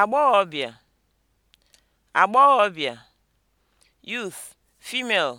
agbọghọbịa agbọghọbịa (youth, female)